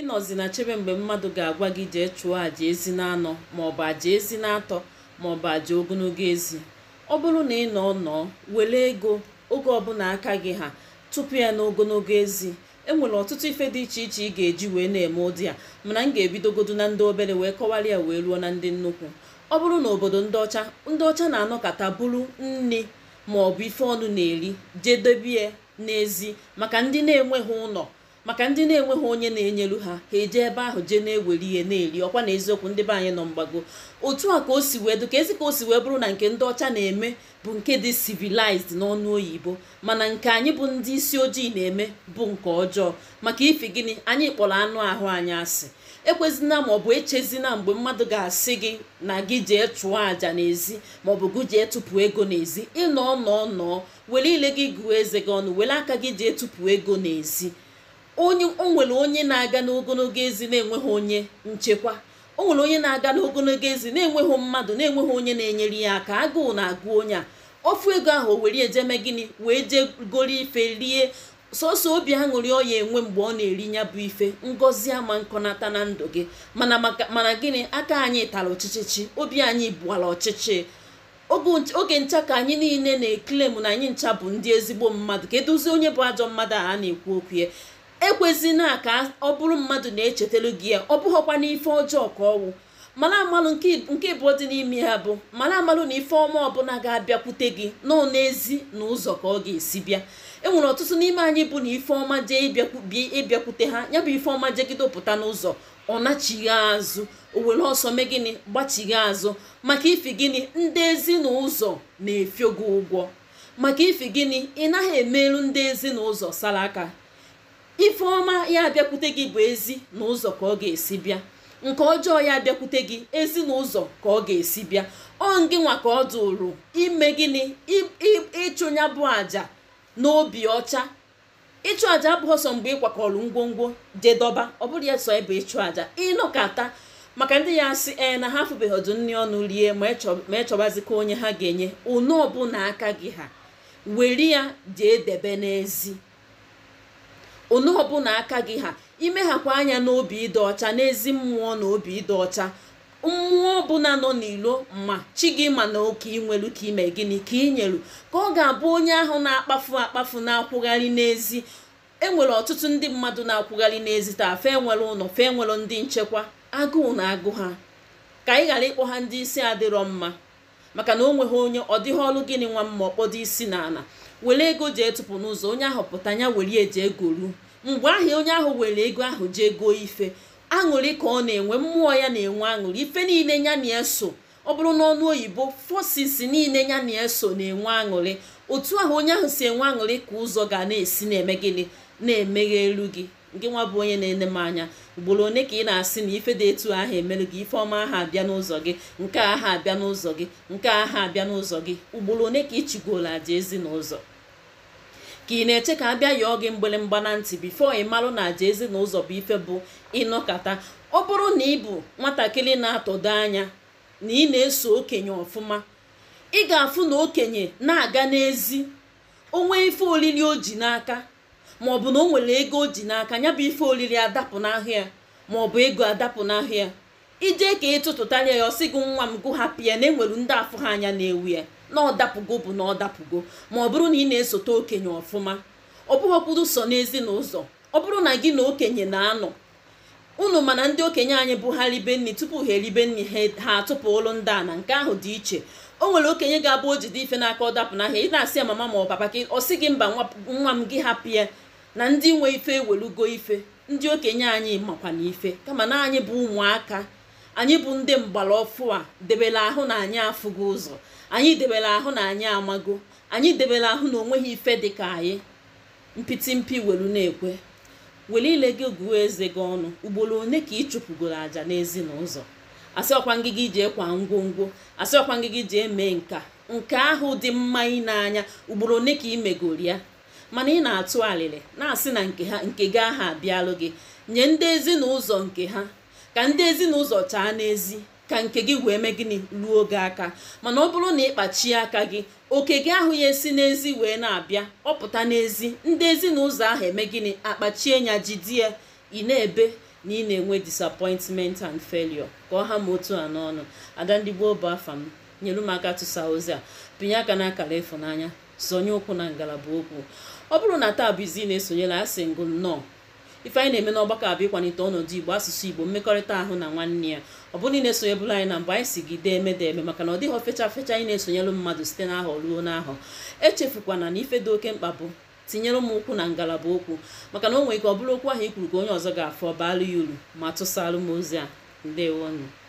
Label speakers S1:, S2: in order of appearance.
S1: ịnọzi na chebe mgbe mmadụ ga-agwa gị jee chụọ àjà ezi na-anọ maọbụ àjà ezi na-atọ maọbụ àjà ogologo ezi ọ bụrụ na ị nọ nọọ were ego oge ọbụla aka gị ha tupu ya n'ogologo ezi enwere ọtụtụ ife dị iche iche ị ga-eji wee na-eme ụdị a mana m ga-ebidogodu na ndị obere wee kọwara ya wee ruo na ndị nnukwu ọ bụrụ na obodo ndị ọcha ndị ọcha na-anọkọta bụrụ nne maọbụ ife ọnụ na-eri jedebie n'ezi maka ndị na-enweghị ụlọ maka ndị na-enweghị onye na-enyelu ha ha eje ebe ahụ jee na-ewere ihe na-eri ọkwa na eziokwu ndị be anyị nọ mgbago otu a ka o si wee dị ka ezi ka o si wee bụrụ na nke ndị ọcha na-eme bụ nke dị civilized n'ọnụ oyibo mana nke anyị bụ ndị isi ojii na-eme bụ nke ọjọọ maka ifi gịnị anyị kpọrọ anụ ahụ anyị asị ekwezina ma ọ bụ echezina mgbe mmadụ ga-asị gị na gị jee chụọ àjà n'ezi bụ gị jee tụpụ ego n'ezi ịnọ nọọ nọọ were ile gị gụọ eze gị ọnụ were aka gị jee tụpụ ego n'ezi onye o nwere onye na-aga n'ogologo ezi na-enweghị onye nchekwa o nwere onye na-aga n'ogologo ezi na-enweghị mmadụ na-enweghị onye na-enyere ya aka agụụ na-agụ onye a ofu ego ahụ o were ejeme gịnị wee jee ife rie sọsọ obi aṅụrị ọ ya enwe mgbe ọ na-eri ya bụ ife Ngozi ama nkọnata na ndụ gị mana mana gịnị aka anyị tara ọchịchịchị obi anyị bụwara ọchịchị oge ncha ka anyị niile na-eklem na anyị ncha bụ ndị ezigbo mmadụ ka edozie onye bụ ajọ mmadụ a na-ekwu okwu ya ekwezina ka ọ bụrụ mmadụ na-echetelu gị ya ọ bụghọkwa n'ife ọjọọ ka ọwụ mara amalụ nke ịbụọ dị n'ime ya bụ mara amalụ na ife ọma ọbụla ga-abịakwute gị nọ n'ezi na ụzọ ka ọ ga-esi bịa enwere ọtụtụ n'ime anyị bụ na ife ọma jee ịbịakwute ha ya bụ ife ọma jegide pụta n'ụzọ ọ nachighị azụ o were ọsọ mee gịnị gbachighị azụ maka ife gịnị ndị ezi na ụzọ na-efio gị ụgwọ maka ife gịnị ị naghị emeru ndị ezi na ụzọ sara aka ifeọma ya abịakwute gị bụ ezi na ụzọ ka ọ ga-esi bịa nke ọjọọ ya abịakwute gị ezi na ụzọ ka ọ ga-esi bịa ọ ngị nwa ka ọ dụrụ ime gịnị ịchụnya bụ àjà n'obi ọcha ịchụ àjà abụghị ọsọ mgbe ị kwakọrọ ngwongwo jedọba ọ bụrụ ya sọ ebe ịchụ àjà ịnọkata maka ndị ya asị ee na ha afụbeghị ọdụ nri ọnụ rie ma ịchọbazikwa onye ha ga-enye unu ọbụla aka gị ha were ya jee debe n'ezi onu ọbụla aka gị ha imeghakwa anya n'obi ịdị ọcha n'ezi mmụọ na obi ịdị ọcha mmụọ ọbụla nọ n'ilo ma chi gị ma na oke inwelu ka ime gịnị ka ị nyelu ka ọ ga-abụ onye ahụ na-akpafu akpafu na-akwụgharị n'ezi enwere ọtụtụ ndị mmadụ na-akwụgharị n'ezi taa fe nwere ụlọ fe nwere ndị nchekwa agụụ na agụ ha ka ị ghara ịkpọ ha ndị isi adịrọ mma maka na o nweghị onye ọ dịghị ọrụ gịnị nwa mma ọkpọdo isi na ala were ego jee tụpụ n'ụzọ onye ahụ pụta ya were eji ego ruo mgbe ahụ onye ahụ were ego ahụ jee goo ife aṅụrị ka ọ na-enwe mmụọ ya na-enwe aṅụrị ife niile ya na eso ọ bụrụ n'ọnụ oyibo forces niile ya na eso na-enwe aṅụrị otu ahụ onye ahụ si enwe aṅụrị ka ụzọ ga na-esi na-eme gịnị na-emeghe elu gị nke nwa bụ onye na-ene m anya ugboro one ka ị na-asị na ife dị etu ahụ emere gị ife ọma aha abịa n'ụzọ gị nke aha abịa n'ụzọ gị nke aha abịa n'ụzọ gị ugboro one ka ị chigoro aja ezi n'ụzọ ka ị na-eche ka a bịa yọọ gị mgbịrịmgba na ntị bifo ị malụ na àja ezinụlọ bụ ife bụ ịnọkata ọ bụrụ na ị bụ nwatakịrị na-atọdo anya na ị na-eso okenye ọfụma ị ga-afụ na okenye na-aga n'ezi onwe ife olili o ji n'aka bụ na o nwere ego o ji n'aka ya bụ ife olili adapụ ma ọ bụ ego adapụ n'ahụ ijee ka ịtụtụtanye ya ọsị gị nwa m hapụ ya na enwere ndị afụ ha anya na-ewu ya na ọdapụgo bụ na ọdapụgo ma ọ bụrụ na ị na-esote okenye ọfụma ọ bụghọkwuru so n'ezinụlọ ọ bụrụ na gị na okenye na-anọ unu mana ndị okenye anyị bụ ha ribe nri tupu ha eribe nri e, ha atụpụ ụlụ ndị a na nke ahụ dị iche o nwere okenye ga-abụ o jide ife n'aka ọ dapụ n'ahịa ị na-asị ya mama ma ọ papa ọ gị mba nwa m gị hapụ ya na ndị nwe ife ewelugo ife ndị okenye anyị makwana ife kama na anyị bụ ụmụaka anyị bụ ndị mgbara ọfụ a debere ahụ na anyị afụgo ụzọ anyị debere ahụ na anyị amago anyị debere ahụ na onweghị ife dị ka anyị mpịtị mpi welu na-ekwe were ile gị guo eze gị ọnụ ugboro one ka ị chụpụgoro àjà n'ezinụzọ asị ọkwa ngịgị ji ekwa ngwongwo asị ọkwa ngịgị ji eme nka nke ahụ dị mma ị ugboro one ka ị ya mana ị na-atụ alịrị na-asị na nke ha nke gị aha abịalụ gị nye ndị ezinaụzọ nke ha ka ndị ezinụlọ chaa n'ezi ka nke gị wee mee gịnị ruo oge aka mana ọ bụrụ na ịkpachie aka gị oke gị ahụ ya esi n'ezi wee na-abịa ọ pụta n'ezi ndị ezinụlọ ahụ eme gịnị akpachie ya jidie ị na-ebe na ị na-enwe disapointment and felio ka ọ ha ma otu a n'ọnụ ada ndị gboo bụ afa m nyere m aka tụsa ozi a pinye aka n'akara ịfụnanya sonye ụkwụ na ngalaba okwu ọ bụrụ na taa bụ izi na-esonyela asị ngụ nnọọ ife anyị na-eme n'ọgbakọ abụ ịkwalite ọnọdụ igbo asụsụ igbo mmekọrịta ahụ na nwanne ya ọ bụrụ na ị na-esonye bụla anyị na mbụ anyị si gị dee emede eme maka na ọ dịghị ofecha fecha anyị na-esonyelụ mmadụ site n'ahọ ruo n'ahọ echefukwana na ife dị oke mkpa bụ tinyere m ụkwụ na ngalaba okwu maka na o nwere ike ọ bụrụ okwu ahụ ikwuru ka onye ọzọ ga-afọ baala ya uru ma tụsalụ m ozi a ndewonụ